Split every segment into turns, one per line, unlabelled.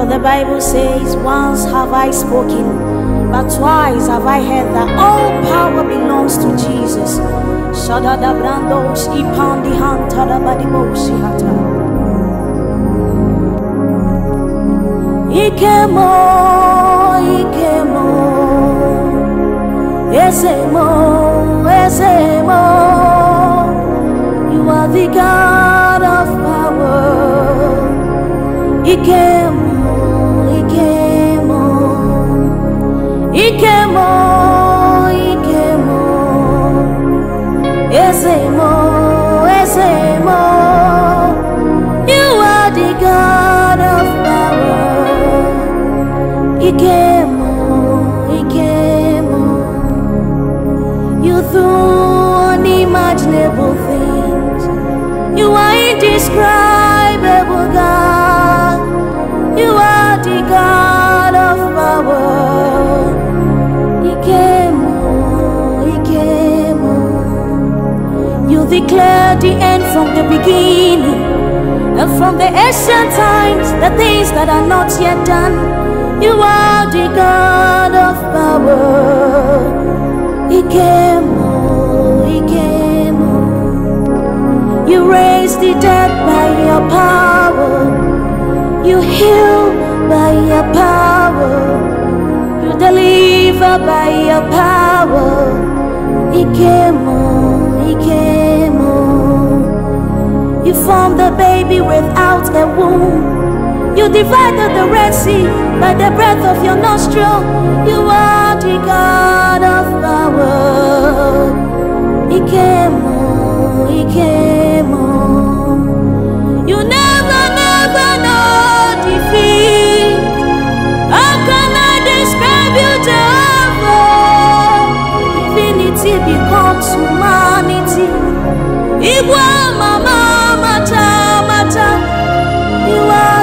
For the Bible says, Once have I spoken, but twice have I heard that all power belongs to Jesus. brandos badimoshi hata. Ikemo, ikemo, esemo, esemo. You are the God of power. Ikemo. You do unimaginable things. You are indescribable, God. You are the God of power. You declare the end from the beginning. And from the ancient times, the things that are not yet done you are the God of power. Ikemo, Ikemo. You raise the dead by your power. You heal by your power. You deliver by your power. Ikemo, Ikemo. You formed the baby without a womb. You divided the Red Sea by the breath of your nostril. You are the God of power. Ikemo, Ikemo. You never, never know defeat. How can I describe you, Jehovah? Infinity becomes humanity. Igual, mama.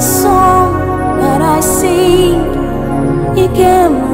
song that I sing. Ikemo.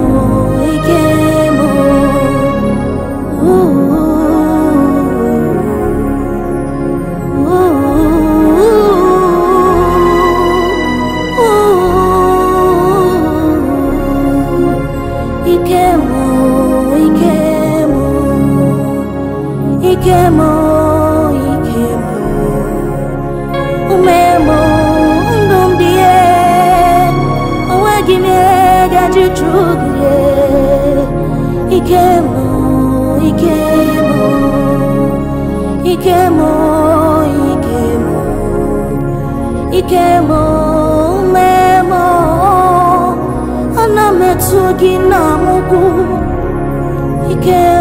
Kemo, mụ mee mụ ana m etu gị